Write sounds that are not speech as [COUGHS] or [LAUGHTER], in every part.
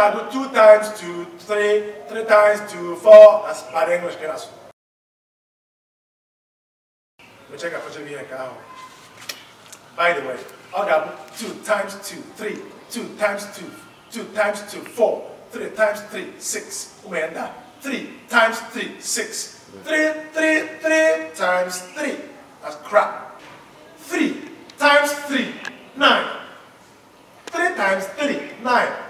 I do two times two, three, three times two, four. as bad English, class. We check out for here, cow. By the way, I got two times two, three, two times two, two times two, four, three times three, six. When that three times three, six. Three, three, three times three. That's crap. Three times three, nine. Three times three, nine.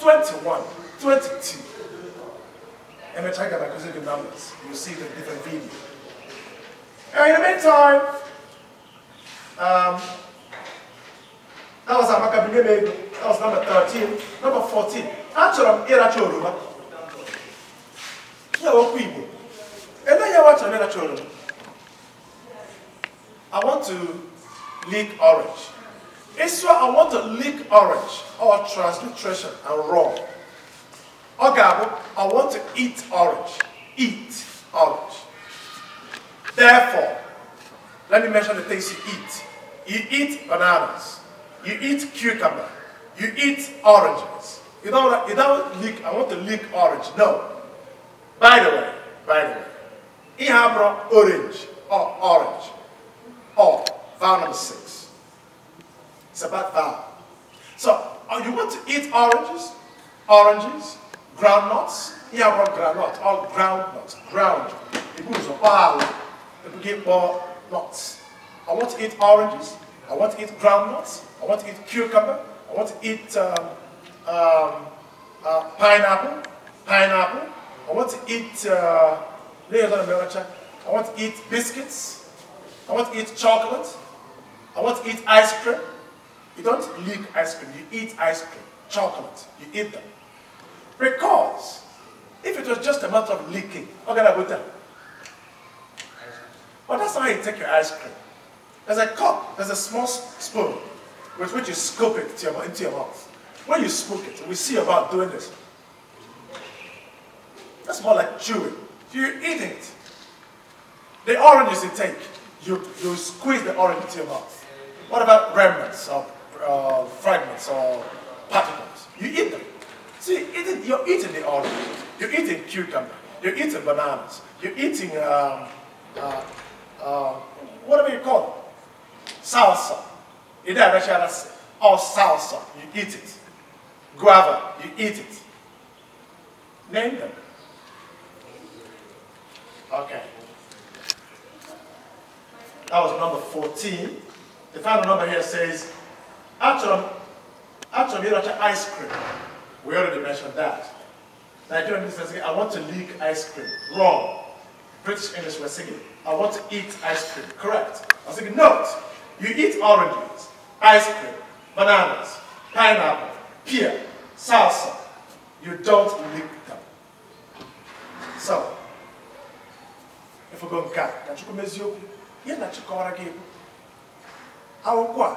21, 22. And we check out the numbers. You'll see the different video. And in the meantime, um, that was Amakabine Mego. That was number 13. Number 14. Actually, I'm Iracho Yoruba. Yeah, what And then you watch Iracho Yoruba. I want to lick orange. Israel, I want to lick orange or transliteration and wrong ọ I want to eat orange eat orange therefore let me mention the things you eat you eat bananas you eat cucumber you eat oranges you don't, you don't lick I want to lick orange no by the way by the way ihe abụrụ orange or orange or vowel number six it's about value. So, oh, you want to eat oranges, oranges, groundnuts, yeah, one groundnut, all oh, groundnuts, ground. People use a pile, people give more nuts. I want to eat oranges, I want to eat groundnuts, I want to eat cucumber, I want to eat um, um, uh, pineapple, pineapple, I want to eat, uh, I want to eat biscuits, I want to eat chocolate, I want to eat ice cream, you don't lick ice cream, you eat ice cream, chocolate, you eat them. Because if it was just a matter of licking, how can I go tell? But that's how you take your ice cream. There's a cup, there's a small spoon with which you scoop it to your, into your mouth. When you scoop it, we see about doing this. That's more like chewing. You eat it. The oranges you take, you, you squeeze the orange into your mouth. What about remnants of uh, fragments or particles. You eat them. See, eating, you're eating the olive. You're eating cucumber. You're eating bananas. You're eating um, uh, uh, whatever you call it, salsa. In that that's all salsa, you eat it. Guava, you eat it. Name them. Okay. That was number 14. The final number here says Atom, m you m ice cream. We already mentioned that. Nigerian business I want to lick ice cream. Wrong. British English were singing, I want to eat ice cream. Correct. I was thinking, no. You eat oranges, ice cream, bananas, pineapple, pear, salsa. You don't lick them. So, if we go back, na You're not na chukwu ọra gị bụ akwụkwọ go.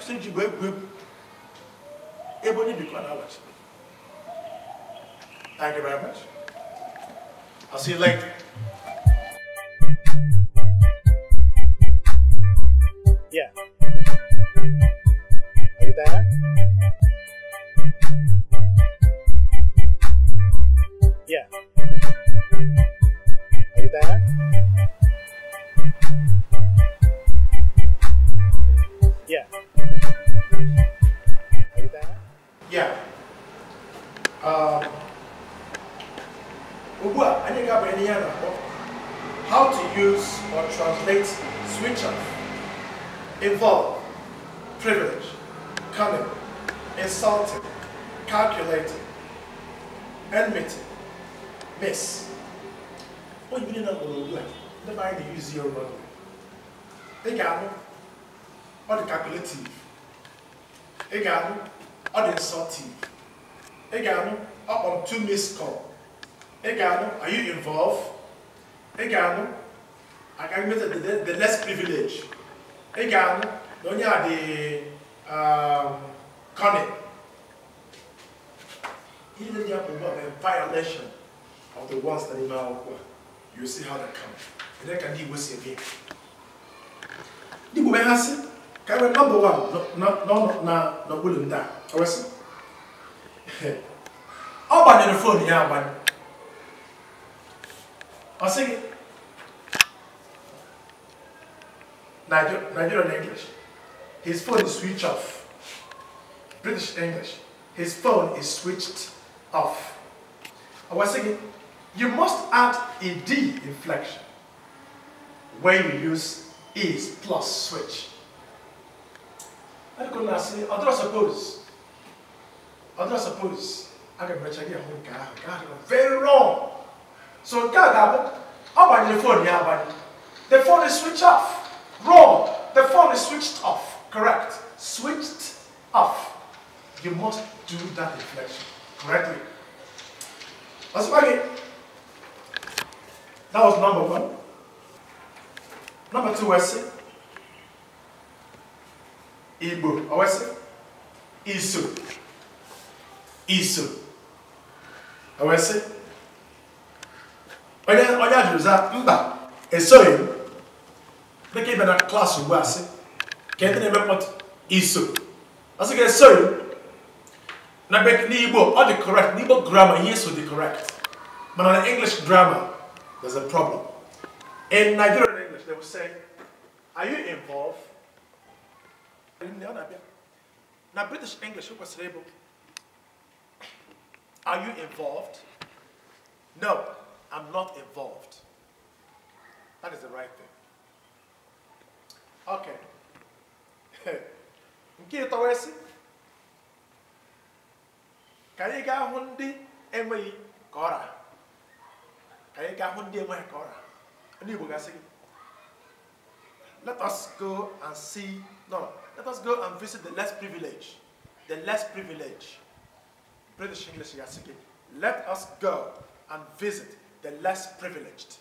kwụsị ijigbo bem egwu ebe onye bikwa n'abalị Thank you very much. I'll see you later. How to use or translate switch off, involve, privilege, cunning, insulting, calculating, enmity, miss. What oh, you know like the mind use your money. They got or the calculative. They got or the insulting. They got up on two missed call. Egano, are you involved? Egano, agamete the, the, the less privilege. privileged. Egano, donye a de um, cunning. Even the problem a violation of the ones that in our you see how that comes. And that can deal with again. Nibu behasi, kawe number one, no no no na no bulum da. Awesi. Ọgbanyere fon ya agbanye. I'll sing it. Niger Nigerian English. His phone is switched off. British English. His phone is switched off. I was singing, you must add a D inflection when you use is plus switch. I And I say, other suppose, other suppose, I can mention here, very wrong. So nke How about the phone? Yeah, fon the phone is switched off wrong the phone is switched off correct switched off you must do that reflection correctly ọsịkwa gị that was number one number two I say. Igbo ọ oh, wee sị Isu. iso ọ wee sị onye onye a jụrụ za mba esoghị m dịka ịbịa na klaasị ugbu a sị ka ndị na-eme mkpọtụ iso ọ sị ka esoghị m na n'igbo ọ dị correct n'igbo grammar ihe so dị correct mana na english grammar there's a problem in nigerian english they will say are you involved na british english kwesịrị ịbụ are you involved no I'm not involved. That is the right thing. Okay. [LAUGHS] nke ịtọwa Kaya ka anyị gaa hụ ndị enweghị ka ọra ka anyị gaa let us go and see no let us go and visit the less privileged the less privileged British English gasị let us go and visit the less privileged.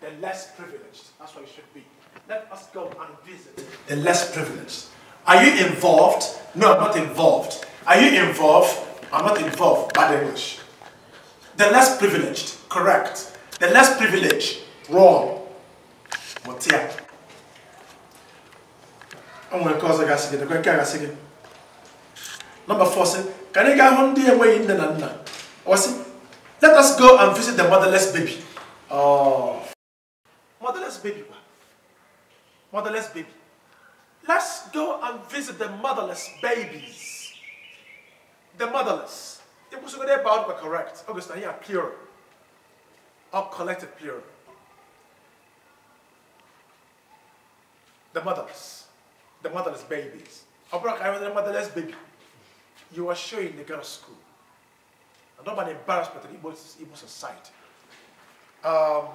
The less privileged. That's what it should be. Let us go and visit the less privileged. Are you involved? No, I'm not involved. Are you involved? I'm not involved. Bad English. The less privileged. Correct. The less privileged. Wrong. here? I'm going to cause a gas again. Number four, can you get home there way in the Nana? Or see, let us go and visit the motherless baby. Oh. Motherless baby. Motherless baby. Let's go and visit the motherless babies. The motherless. The we they about were correct, August, here pure, Or collective pure. The motherless. The motherless babies. I I the motherless baby. You are showing the girls school. And I'm an embarrassment to the Igbo, Igbo society. Um,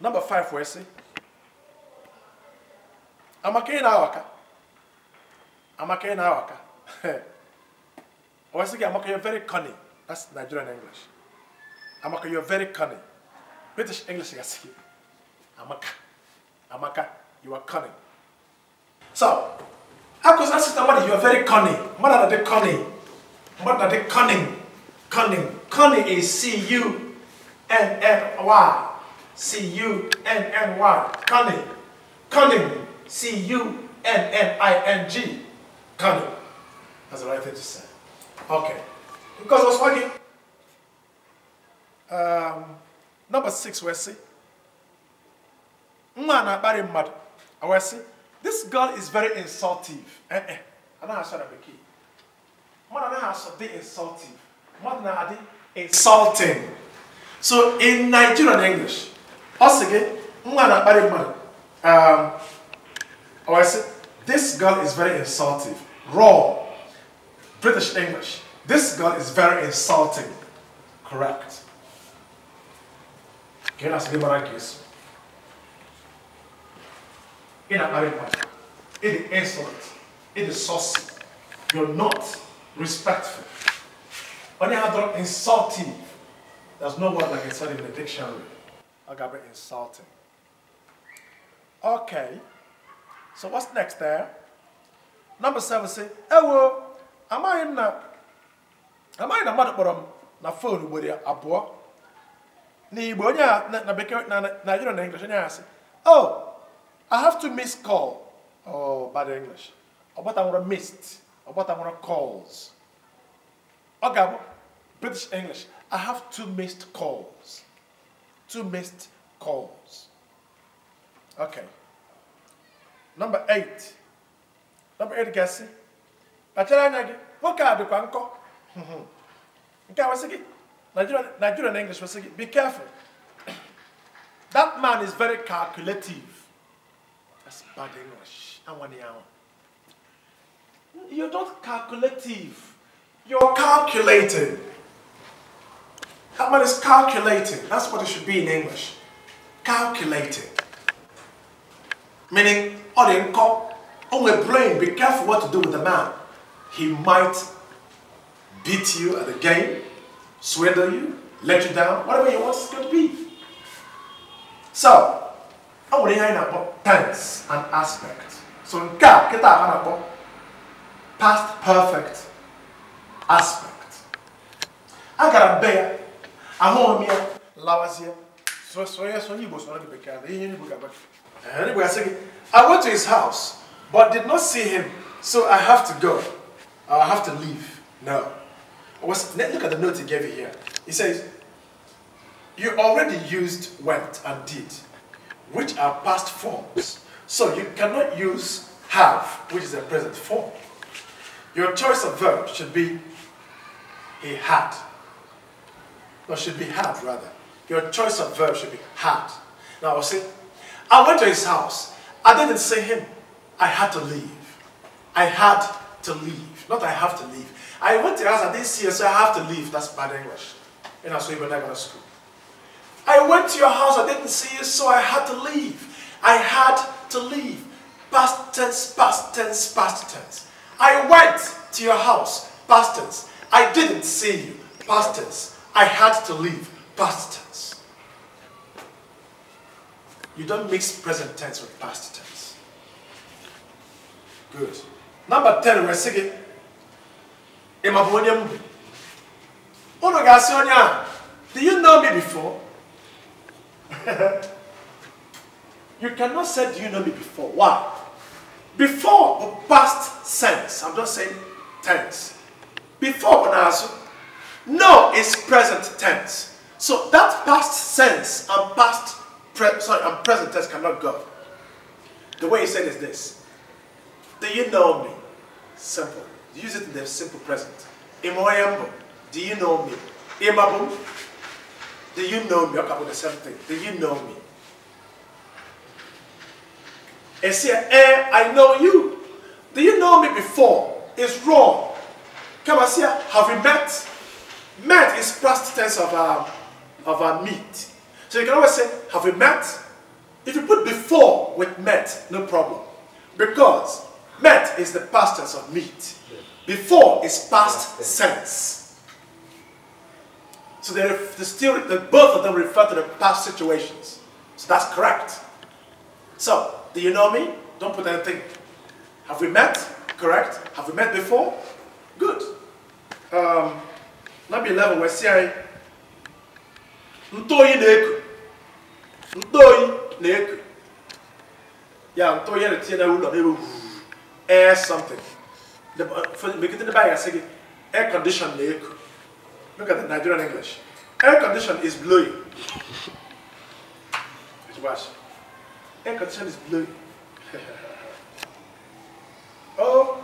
number five, we say, Amaka ị na-awaka. Amaka ị na-awaka. Or I say, Amaka, you're very cunning. That's Nigerian English. Amaka, you're very cunning. British English, I say, Amaka. Amaka, you are cunning. So, I was asking somebody, you are very cunning. Mother, they cunning. Mother, they cunning. Cunning. Cunning is C-U-N-N-Y. C-U-N-N-Y. Cunning. Cunning. C-U-N-N-I-N-G. Cunning. That's the right thing to say. Okay. Because I was working. Um, number six, we see. Mwana bari mad. I see. This girl is very insultive. Eh eh. I don't have to be key. Mother has to be insultive mmadụ na-adị insulting so in nigerian english ọ again. Um, or I say, this girl is very insulting raw british english this girl is very insulting correct ka ị na-asị gị mara na na-akparị insolent it is saucy you're not respectful when I have done insulting, there's no word like insulting in the dictionary. I got be insulting. Okay. So what's next there? Number seven say, Ewo, am I in a am I in a mother um, na phone with your abo? N'Igbo onye a na bekee na Nigeria na English onye a sị, Oh, I have to miss call. Oh, bad English. Ọ gbata nwere missed. Ọ gbata nwere calls. Ogabo, British English. I have two missed calls. Two missed calls. Okay. Number eight. Number eight, Gassi. Kpachara anya gị, nwoke a dịkwa nkọ. Nke a wesị gị, Nigerian English wesị it? be careful. [COUGHS] That man is very calculative. That's bad English. Anwani anwa. You're not calculative. You're calculating. That man is calculating. That's what it should be in English. Calculating. Meaning, on the income, on the brain, be careful what to do with the man. He might beat you at the game, swindle you, let you down, whatever he wants to be. So, I will ihe anyị tense and aspect. So nke a kịta past perfect aspect agara bear. be ya ahụghị m ya lawazie sonye sonye igbo soro gị bekee na ihe eh, I ga-agba igbo asị gị I went to his house but did not see him so I have to go I have to leave no was, look at the note he gave you here he says you already used went and did which are past forms so you cannot use have which is a present form your choice of verb should be he had. or should be had rather. Your choice of verb should be had. Now I'll say, I went to his house. I didn't see him. I had to leave. I had to leave. Not I have to leave. I went to his house, I didn't see him, so I have to leave. That's bad English. And that's why you're not going to school. I went to your house, I didn't see you, so I had to leave. I had to leave. Past tense, past tense, past tense. I went to your house, past tense. I didn't see you. Past tense. I had to leave. Past tense. You don't mix present tense with past tense. Good. Number 10, we're singing. Imabonyem. Ono gasionya. Do you know me before? [LAUGHS] you cannot say, do you know me before? Why? Before, past sense. I'm just saying tense before Onazu. No is present tense. So that past sense and past sorry and present tense cannot go. The way he said is this. Do you know me? Simple. Use it in the simple present. Imoyembo, do you know me? Imabu, do you know me? Okay, the same thing. Do you know me? say, eh, I know you. Do you know me before? It's wrong. Kabasia, have we met? Met is past tense of our, of our meet. So you can always say, have we met? If you put before with met, no problem. Because met is the past tense of meet. Before is past sense. So they, they still, they, both of them refer to the past situations. So that's correct. So, do you know me? Don't put anything. Have we met? Correct? Have we met before? um, number 11 wee sị anyị ntoyi na-eku ntoyi na-eku ya ntoyi ya na-etinye n'ụlọ n'ebe air something The uh, megide the bag I say, air condition na-eku look at the Nigerian English air condition is blowing [LAUGHS] air condition is blowing [LAUGHS] oh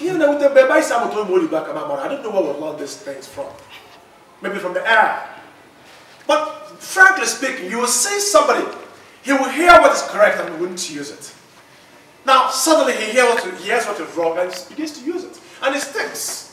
even with the Beba Islam, I don't know where we learned these things from. Maybe from the air. But frankly speaking, you will see somebody, he will hear what is correct and he wouldn't use it. Now, suddenly he hears what is wrong and begins to use it. And it sticks.